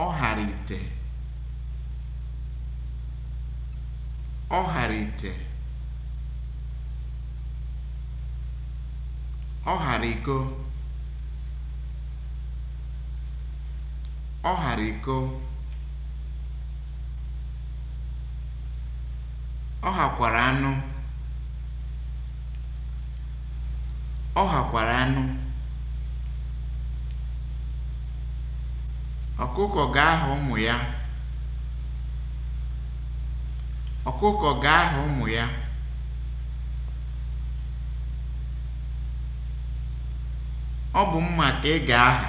Ọ ghara iko, ọ ghara iko, ọ hakwara anụ ọ hakwara anụ Ọkụkọ ga-aha ụmụ ya. Ọkụkọ ga-aha ụmụ ya. Ọ bụ mma ka ị ga-aha.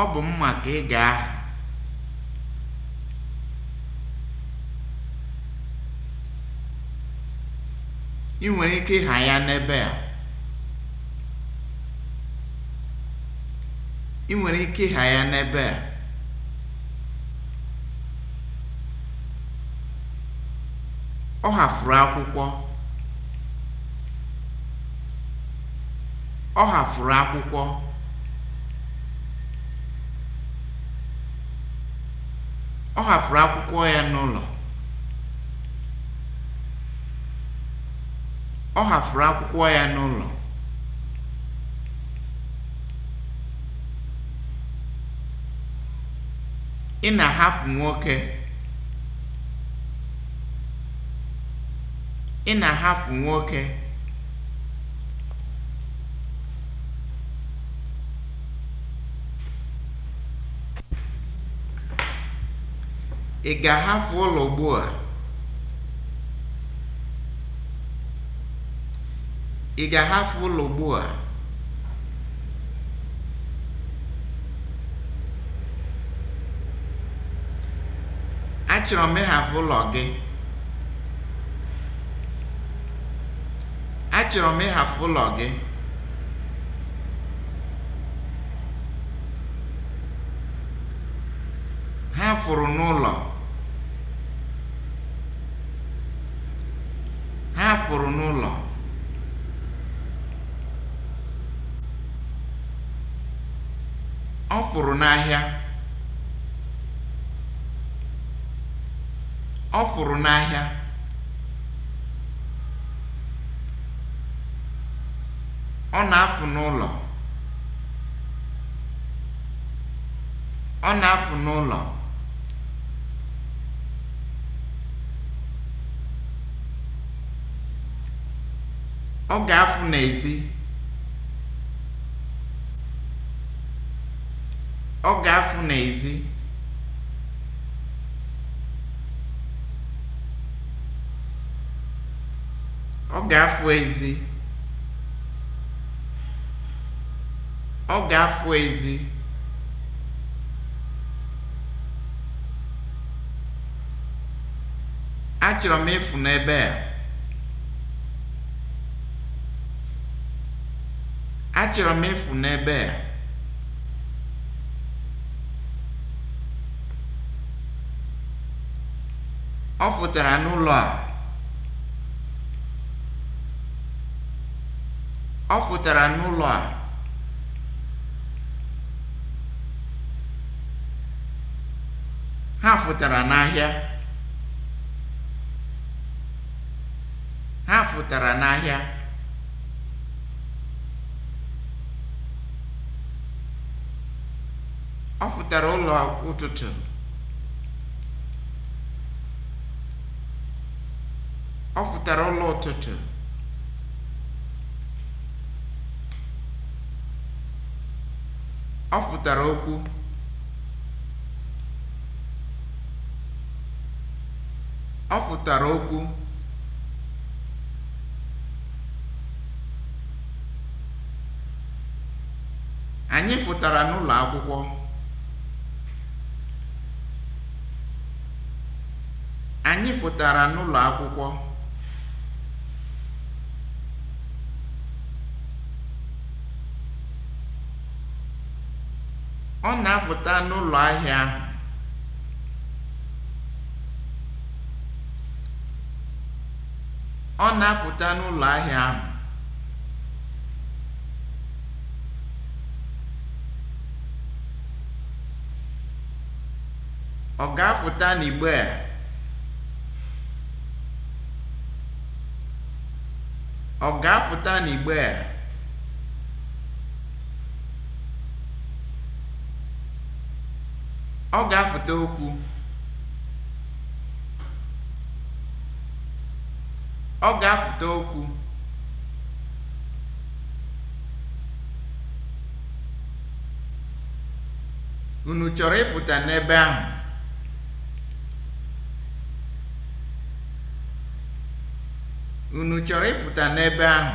Ọ bụ mma ka ị ga-aha. Ị nwere ike ịha ya n'ebe a. ị nwere ike ịgha ya n'ebe a ọ ghafuru akwụkwọ ọ ghafuru akwụkwọ ọ ghafuru akwụkwọ ya n'ụlọ ọ akwụkwọ ya n'ụlọ ị na-ahapụ nwoke ị na-ahapụ nwoke ị ga-ahapụ ụlọ ugbu a ị ga-ahapụ ụlọ ugbu a achọrọ m ịhapụ ụlọ gị achọrọ m ịhapụ ụlọ gị ha fụrụ n'ụlọ ha fụrụ n'ụlọ ọ fụrụ n'ahịa ọ fụrụ n'ahịa ọ na-afụ n'ụlọ ọ na-afụ n'ụlọ ọ ga-afụ n'ezi ọ ga-afụ n'ezi Ọ ga-afụ ezi. Ọ Achọrọ m ịfụ n'ebe a. Achọrọ m ịfụ n'ebe a. Ọ fụtara n'ụlọ a. Ọ pụtara n'ụlọ a ha pụtara n'ahịa ha pụtara n'ahịa ọ pụtara ụlọ ụtụtụ ọ pụtara ụlọ ụtụtụ Ọ pụtara okwu Ọ pụtara okwu Anyị pụtara n'ụlọ akwụkwọ Anyị pụtara n'ụlọ akwụkwọ Ọ na-apụta n'ụlọ ahịa ahụ. Ọ na-apụta n'ụlọ ahịa ahụ. Ọ ga-apụta n'igbe a? Ọ ga-apụta n'igbe a? Ọ ga-afụta okwu. Ọ ga-afụta okwu. Unu chọrọ ịpụta n'ebe ahụ? Unu chọrọ ịpụta n'ebe ahụ?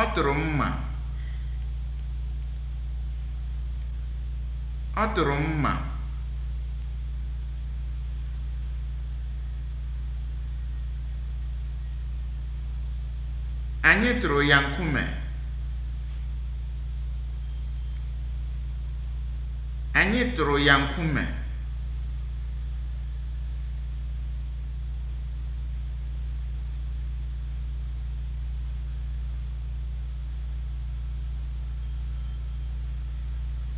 Ọ tụrụ mma. Ọ tụrụ mma. Anyị tụrụ ya nkume. Anyị tụrụ ya nkume.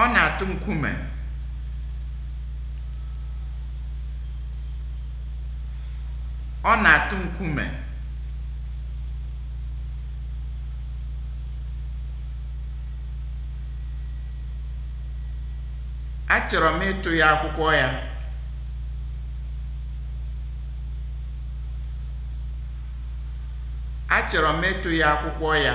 Ọ na-atụ nkume. Ọ na-atụ Achọrọ m ịtụ m ịtụ ya akwụkwọ ya.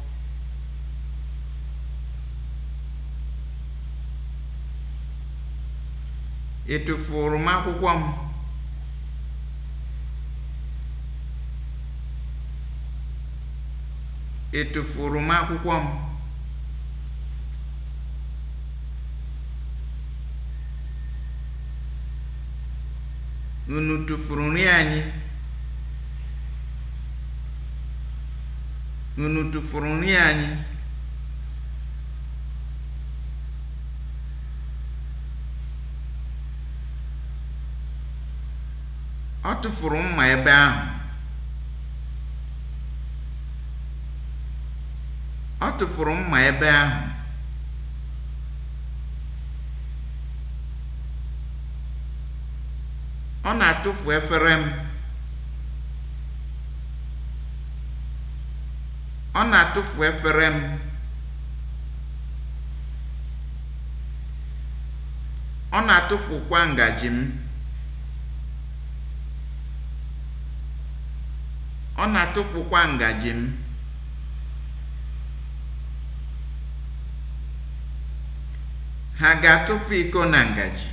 ị tụfuru m akwụkwọ m ị tụfuru unu tụfuru nri anyị ọ tụfuru mma ebe ahụ ọ na-atụfu efere m ọ na-atụfu efere m ọ na-atụfukwa ngaji m ọ na-atụfukwa ngaji m ha ga-atụfu iko na ngaji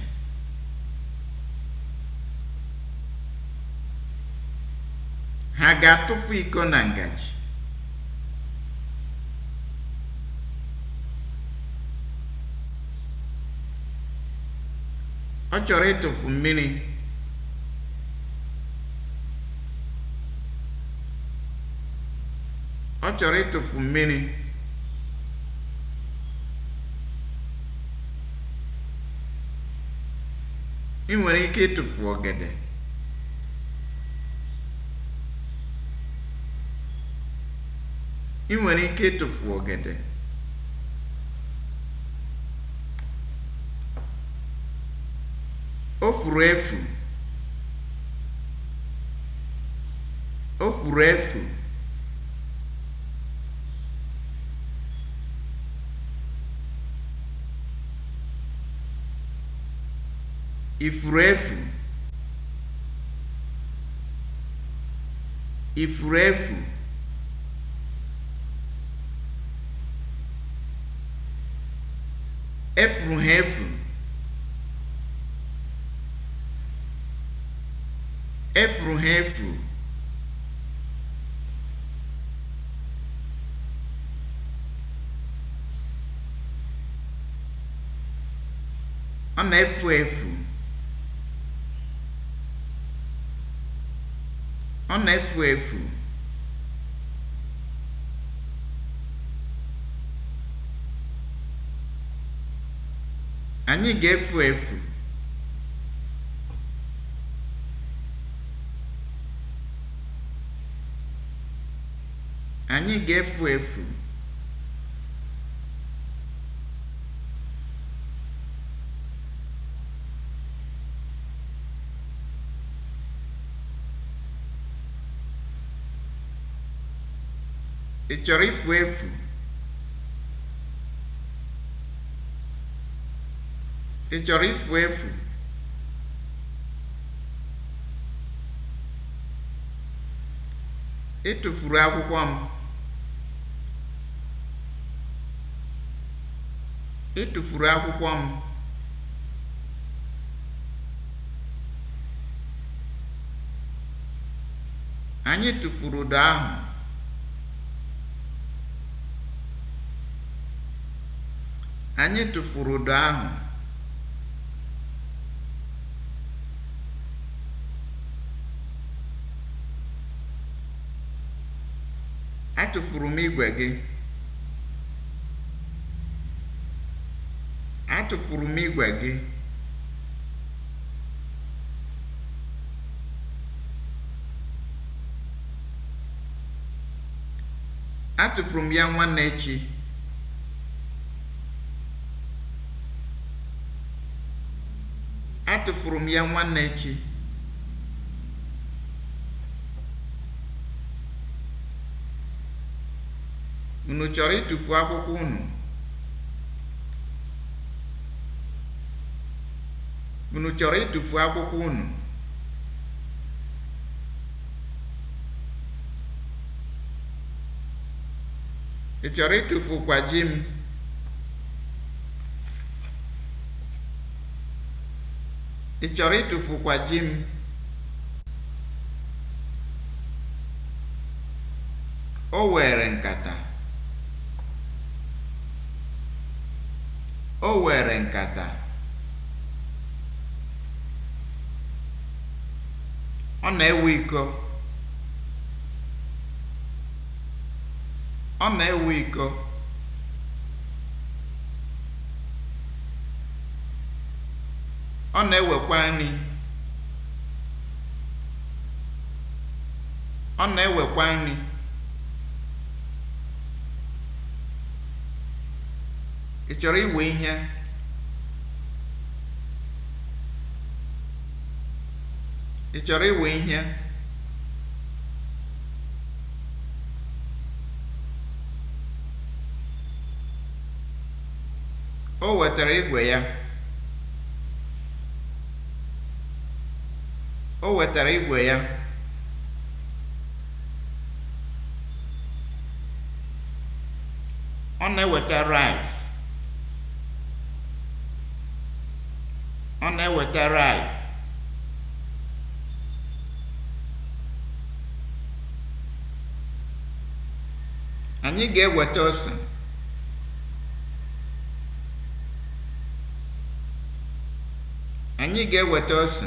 ha ga-atụfu iko na ngaji ọ chọrọ ịtụfu mmiri ọ chọrọ ịtụfu mmiri ị nwere ike ịtụfu ọgede ị nwere ike ịtụfu ọgede o furu efu o furu efu ifuru efu! Efuru ha efu! Efuru ha efu! ọ na-efu efu Ọ na-efu efu. Anyị ga-efu efu. Anyị ga-efu efu. Ị chọrọ ifu efu? Ị chọrọ ifu efu? Ị akwụkwọ m. Ị akwụkwọ m. Anyị tụfuru ụdọ ahụ. Anyị tụfuru ụdọ ahụ. Atụfuru m igwe gị. Atụfuru m igwe gị. Atụfuru m ya nwanne echi. tụfuru m ya nwanne echi unu chọrọ ịtụfu akwụkwọ unu unu chọrọ ịtụfu akwụkwọ unu ị chọrọ ịtụfu kwa ji m Ị chọrọ ịtụfukwa ji m? O were nkata. O were nkata. Ọ na-ewe iko. Ọ na-ewe iko. ọ na-ewekwa nri ọ na-ewekwa nri ị chọrọ iwe ihe ị chọrọ iwe ihe o wetara igwe ya o wetara igwe ya ọ na-eweta rice ọ na-eweta rice anyị ga-eweta ose anyị ga-eweta ose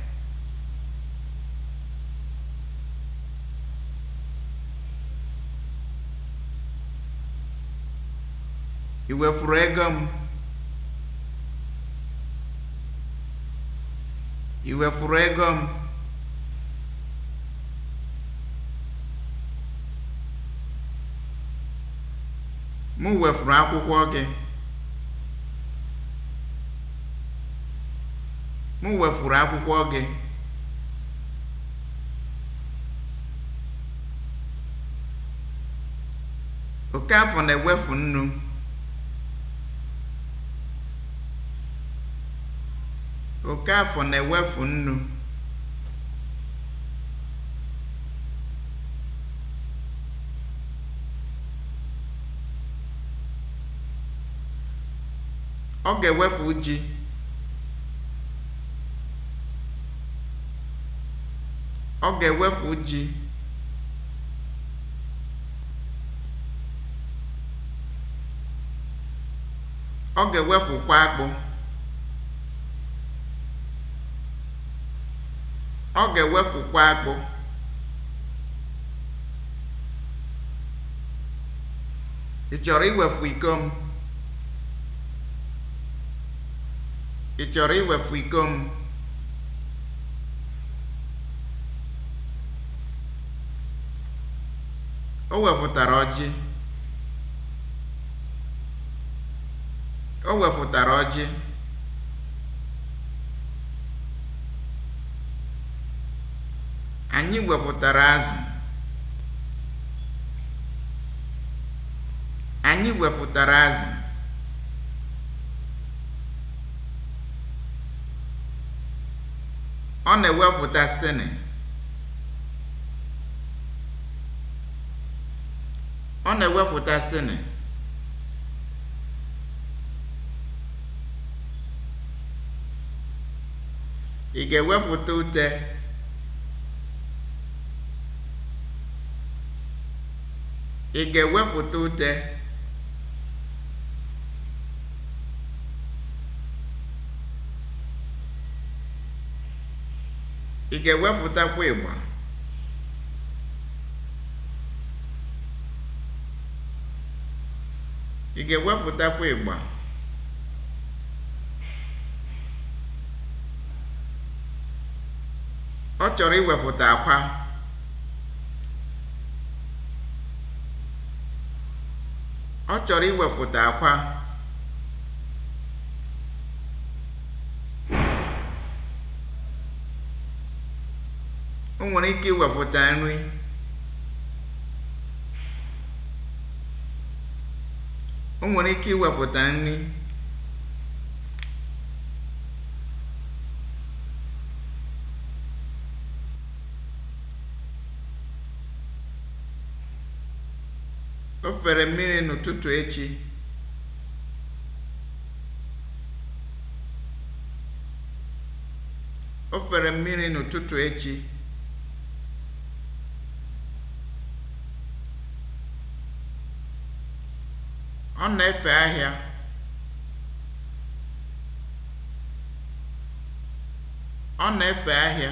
ị wefuru ego m ị wefuru ego m m wefuru akwụkwọ gị m wefuru akwụkwọ gị afọ na-ewefu nnu Okafọ na-ewefu nnu. Ọ ga-ewefu ji. Ọ ga-ewefu ji. Ọ ga-ewefukwa akpụ. ọ ga-ewefukwa agbụ ị chọrọ iwefu iko m ị chọrọ iwefu iko m o wefụtara ọjị o wefụtara ọjị anyị wepụtara azụ anyị wepụtara azụ ọ na-ewepụta sini ọ na-ewepụta sini ị ga-ewepụta ute Ị ga-ewepụta ute? Ị ga-ewepụtakwa ịgba? Ị ga-ewepụtakwa ịgba? Ọ chọrọ iwepụta akwa. Ọ chọrọ iwefụta akwa. O nwere ike iwefụta nri. ike iwepụta nri. fere mmiri n'ụtụtụ echi o fere mmiri n'ụtụtụ echi ọ na-efe ahịa ọ na-efe ahịa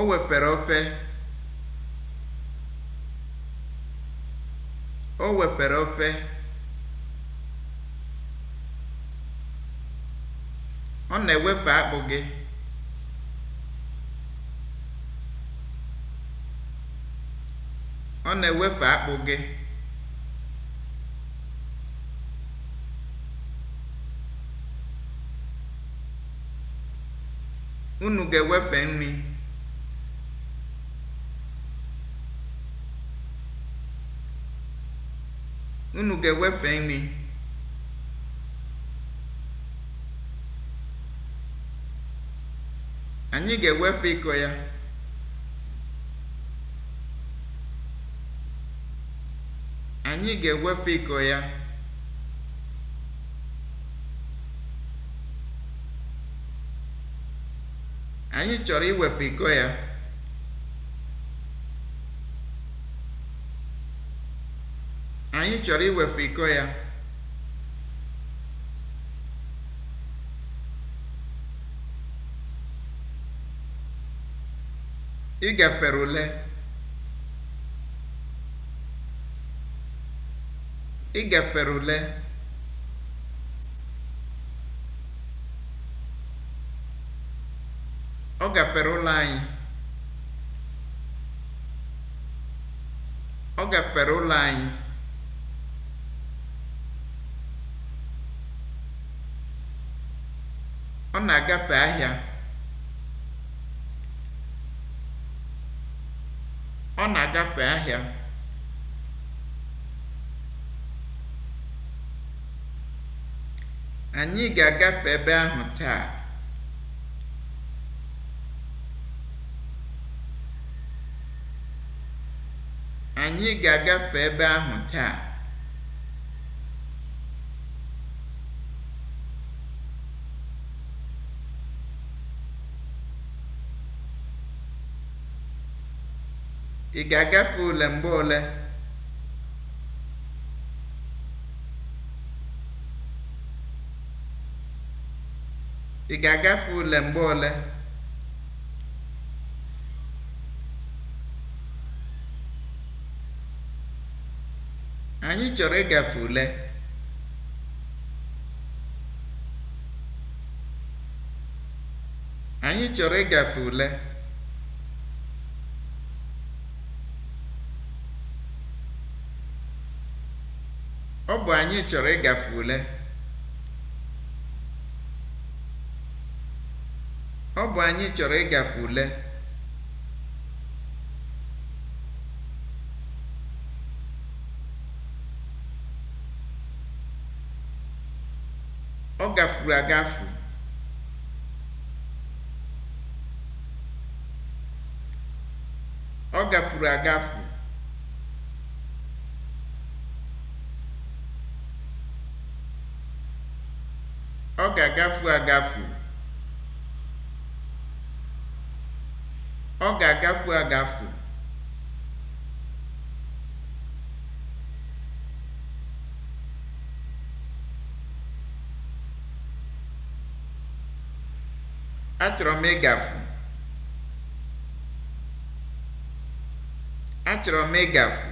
o wepere ofe o wepere ofe ọ na-ewefe akpụ gị ọ na-ewefe akpụ gị unu ga-ewefe nri unu ga-ewefe nri anyị ga-ewefe ịkọ ya anyị ga-ewefe ịkọ ya anyị chọrọ iwefe ịkọ ya anyị chọrọ iwepụ iko ya igafere ule igafere ule ọ gafere ụlọ anyị ọ gafere ụlọ anyị na-agafe ahịa ọ na-agafe ahịa anyị ga-agafe ebe ahụ taa anyị ga-agafe ebe ahụ taa Ị ga-agafe ule mgbe ole? Ị ga-agafe ule mgbe ole? Anyị chọrọ ịgafe ule. Anyị chọrọ ịgafe ule. ọ bụ anyị chọrọ ịgafe ule ọ gafuru agafu ọ gafuru agafu agafu agafu. Ọ ga-agafu agafu. Achọrọ m ịgafu. Achọrọ m ịgafu.